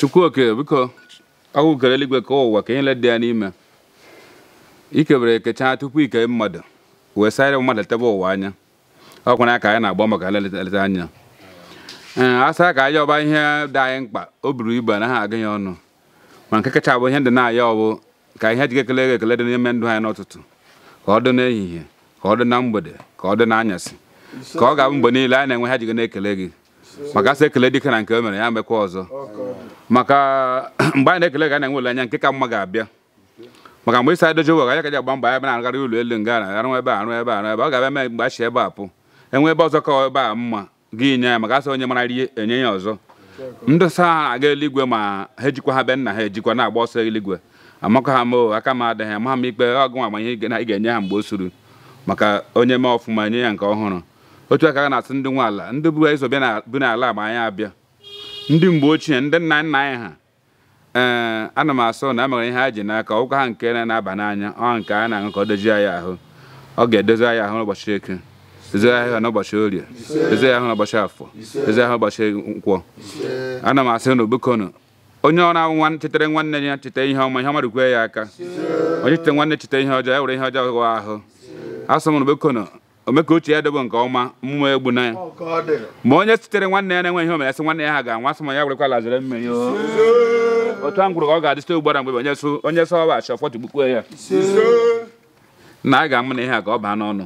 chukwuoke biko ọgwụkere eluigwe ka ụwa ka nyele dị ya n'ime ikebere ekechaa tupu ike mmadụ wee sara mmadụ tebe ụwa anya ọkwa na ka anyị na-agba maka nleta anya ee a saa ka anyị ọba ihe dị anyị mkpa o buru ibu anaghị aga ya ọnụ ma nke kacha bụ ihe ndị na-aya ọbụ ka ihe jike ekele ekele dị n'ime ndụ anyị n'ụtụtụ ka ọ dị n'ehihie ka ọ dị na mgbede ka ọ dị n'anyasị ka ọ ga-abụ mgbe niile anyị na-enwe ha jigo na-ekele gị maka asị ekele dike na nke o e mere ya mekwa ọzọ maka mgbe anyị na-ekele ga na-enwe olileanya nke ka mma ga-abịa maka mgbe isa edoji ụwa ka ji agba mbọ ya na-agara ụlọ elu nga na arụ ebe arụ ebe arụ ebe ọ ga-abịa mgbe a ebe a pụ enwe ebe ọzọ ka ebe a mma gị nye ya maka asị onye mara ihe enye ya ọzọ ndị sa ha aga eluigwe ma ha ejikwa ha be nna ha ejikwa na-agba ọsọ eluigwe amakọ ha ma aka m adịghị ama ha m ikpe ọgụ nwa amamihe ị ga-enye ha mgbe o suru maka onye mee ọfụma enye ya nke ọhụrụ otu aka a na-asị ndị nwe ala ndị bụ eso bi n'ala ma anyị abịa ndị mgbe ochie ndị nna nna anyị ha ee eh, ana m asọ na amara ihe ha ji n'aka ọgwụgwọ ha nke na-aba n'anya ọ nke a na-aṅụ ka ọ dozie anyị ahụ ọ ga-edozi anyị ahụ n'ụbọchị eke dozie ahụ n'ụbọchị orie dozie ahụ n'ụbọchị afọ dozie ahụ n'ụbọchị nkwọ ana m asị na ogbekonu onye ọ na nwa chetere nwanne ya cheta ihe ọma ihe ọma rikwe ya aka onye cheta nwanne cheta ihe ọjọọ ya e were ihe ọjọọ ahụ asọ m na ome ka uche ya dobe nke ọma mmụọ egbu na ya ma onye sitere nwanne ya na-enweghị omenasị nwanne ya ha ga-anwa sị ya ya ala zere mmehie otu a ngwụrụ ka ọ ga-adị site ugbara mgbe onye so onye so ọba achọ fọtụ gbukwuo ya na a ga-amụ na ihe a ka ọ baa n'ọnụ